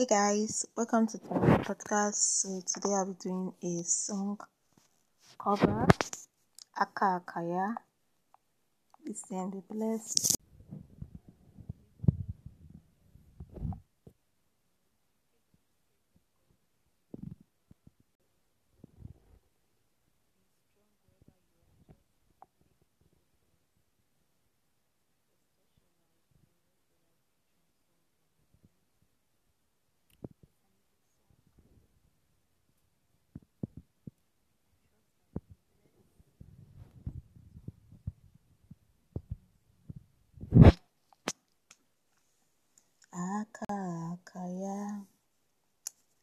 Hey guys, welcome to the podcast. So today I'll be doing a song cover, Aka Akaya. Please then be blessed.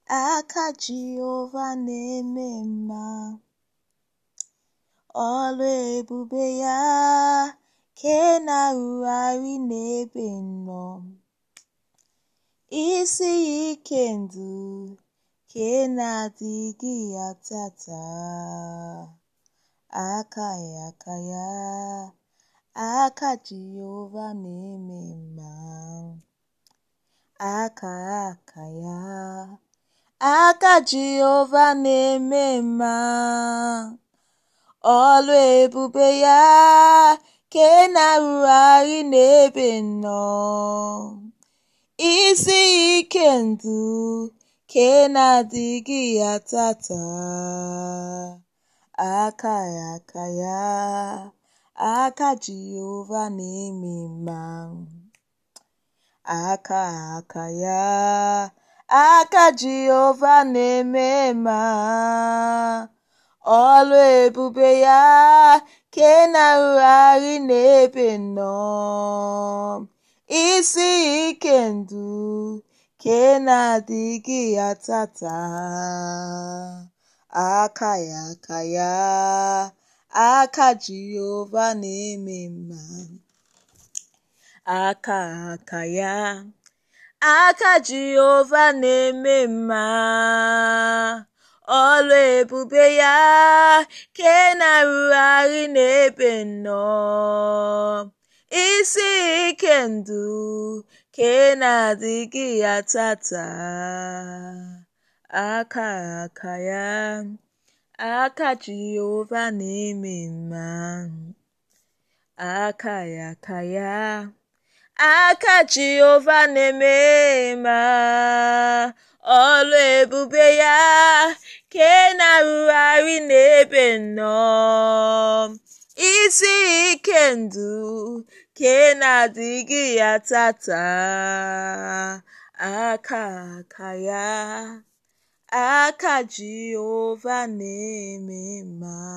aka Jehova na-eme mma ọrụ ebube ya ke na-arụgharị n'ebe nnọ isi ike ndụ ke na-adịghị ya tata aka ya aka ya aka Jehova na-eme mma aka aka ya Aka Jehova na-eme mma, ọlụ ebube ya ka ị e na-arụgharị n'ebe nnọọ. Isi ike ndụ ka ị e na-adịghị ya tata, aka ya aka ya, aka Jehova na-eme mma, aka aka ya. aka Jehova na-eme ma ọlụ ebube ya ke na-arụgharị n'ebe nnọọ isi ike ndụ ke na-adịghị ya tata. aka ya aka ya aka Jehova na-eme mma aka aka ya Aka Jehova na-eme mma ọlụ ebube ya ke na-arụgharị n'ebe nnọọ isi ike ndụ ke na-adịghị ya tata aka aka ya aka Jehova na-eme mma aka ya aka ya Aka Jehova na eme ma ọrụ ebube ya ị na-arụgharị n'ebe nnọọ isi ike ndụ ị na-adịghị ya tata aka aka ya aka Jehova na-eme mma